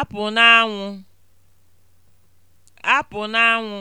apụ n'anwụ apụ n'anwụ